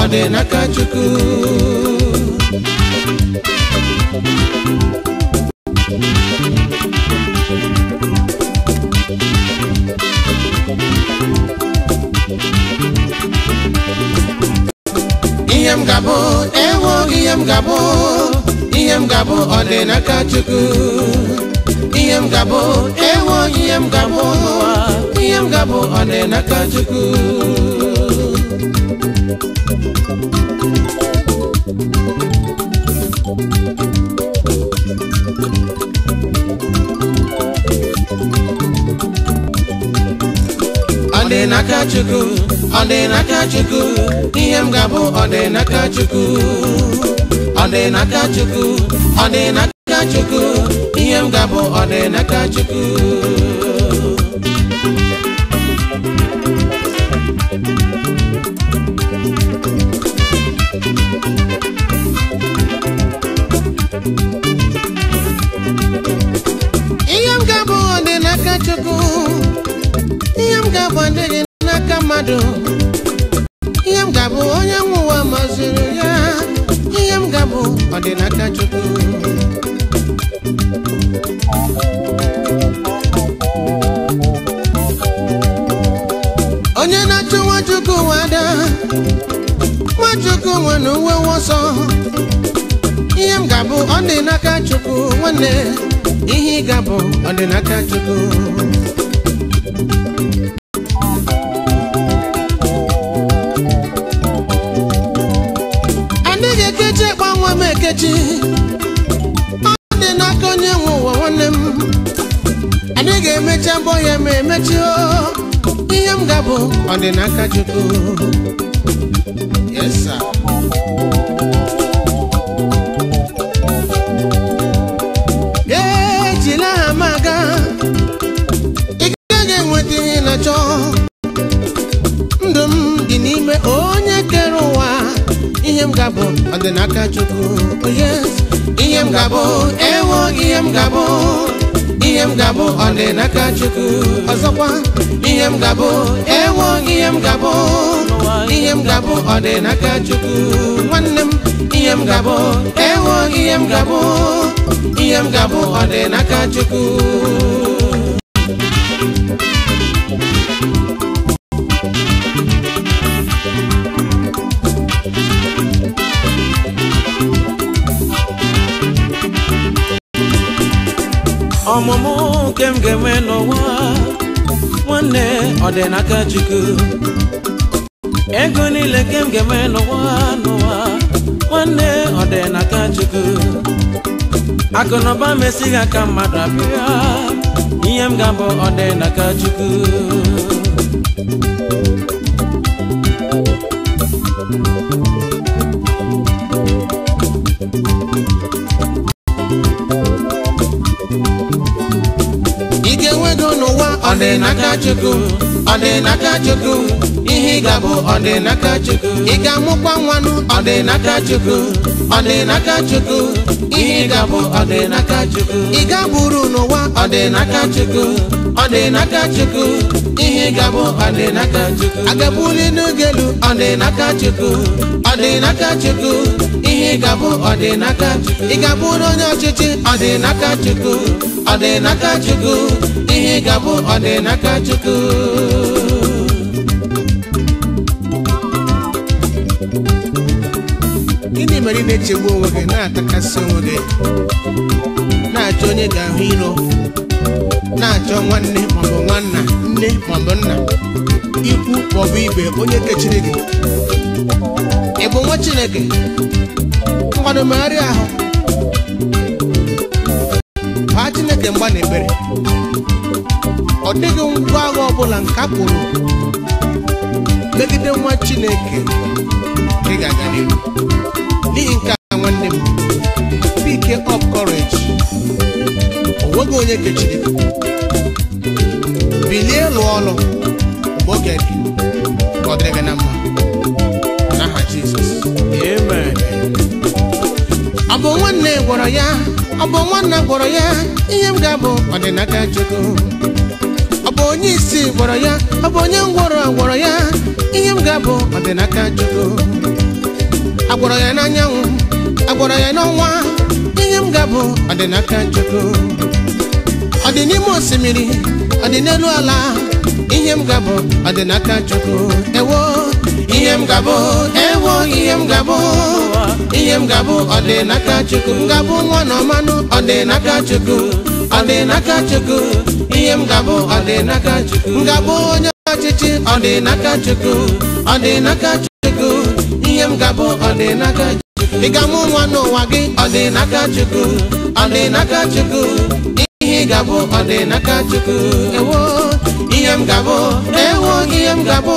ọ dị n'aka Chukwu ihe m ga-abụ ewo ihe m ga-abụ ihe m ga-abụ ọ dị n'aka Chukwu ihe m ga-abụ ewo ihe m ga-abụ ihe m ga-abụ ọ dị n'aka Chukwu Ọ dị n'aka Chukwu, ọ dị n'aka Chukwu, ihe m ga-abụ ọ dị n'aka Chukwu. Ọ dị n'aka Chukwu, ọ dị n'aka Chukwu, ihe m ga-abụ ọ dị n'aka Chukwu. akwa adịghị n'aka mmadụ ihe m ga-abụ onye nwụwa ụwa maziri ya ihe m ga-abụ ọdịnaka Chukwu onye na-achụ Nwachukwu wada Nwachukwu nwere uwe nsọ ihe m ga-abụ ọdịnaka Chukwu nwanne ihe ị ga-abụ ọdịnaka Chukwu ọ dị n'aka onye nwe ụwa nwanne m anyị ga-emecha mbọ ya ma emechi ihe m ga bụ ọ dị n'aka Chukwu yes sir ejila m aga ị gaghị enweta ihe na-achọ ndụ m dị n'ime ihe m ga-abụ ọ dị n'aka Chukwu oh, ihe m ga-abụ ewo ihe m ga-abụ ihe m ga-abụ ọ dị n'aka Chukwu ọzọkwa ihe m ga-abụ ewo ihe m ga-abụ ihe m ga-abụ ọ dị n'aka Chukwu nwanne m ihe m ga-abụ ewo ihe m ga-abụ ihe m ga-abụ ọ dị n'aka Chukwu ọmụmụ nke m ga-enwe n'ụwa nwanne ọ dị n'aka Chukwu ego niile nke m ga-enwe n'ụwa n'ụwa nwanne ọ dị n'aka Chukwu Akụnụba na aka mmadụ abịa ihe m ga-abụ ọ dị n'aka Chukwu Thank you. dị n'aka Chukwu ọ dị n'aka Chukwu ihe ị ga-abụ ọ dị n'aka Chukwu ị ga-amụkwa nwanụ ọ dị n'aka Chukwu ọ dị n'aka Chukwu ihe ị ga-abụ ọ dị n'aka Chukwu ị ga-abụrụ n'ụwa ọ dị n'aka Chukwu ọ dị n'aka Chukwu ihe ị ga-abụ ọ dị n'aka Chukwu agabuli ọ dị n'aka Chukwu ọ dị n'aka Chukwu ihe ga-abụ ọdịnaka ị abụ onye ọchịchị ọdịnaka chukwu ọdịnaka chukwu ihe ga-abụ ọdịnaka chukwu gịnị mere ị na-echegbu onwe gị na-atakasị onwe gị na-achọ onye ga-ahụ iro na-achọ nwanne maọbụ nwanna nne maọbụ nna ikwu maọbụ ibe onye kechiri gị ị bụ nwa Chineke mmadụ megharị ahụ baa Chineke mgba na ebere ọ dịghị ngwa agha ọbụla nke a pụrụ megide nwa Chineke ị ga-aga n'ihi nke a nwanne m pike of courage o onye kechiri bilie lụọ ọlụ mgbe oge dị ọ dịrị gị na mma Jesus. Amen. Ọ bụ nwanne gwọrọ ya, ọ bụ nwanna gwọrọ ya, ihe abu ga-abụ ọdịnaka Chukwu. Ọ bụ onye isi gwọrọ ya, ọ bụ onye ngwọrọ gwọrọ ya, ihe m ga-abụ ọdịnaka Chukwu. Agwọrọ ya n'anyanwụ, agwọrọ ya Chukwu. ala, ihe gabo ga-abụ Chukwu. Ewo ihe m gabụ ewo ihe m gabụ ihe m gabụ ọdịnaka chukwu ngabụ nwa na ọmanụ ọdịnaka chukwu ọdịnaka chukwu ihe m gabụ ọdịnaka chukwu ngabụ onye ọchịchị ọdịnaka chukwu ọdịnaka chukwu ihe m gabụ ọdịnaka chukwu ịgamụ nwa n'ụwa gị ọdịnaka chukwu ọdịnaka chukwu ihe ị gabụ ọdịnaka chukwu ewo ihe m gabụ ewo ihe m gabụ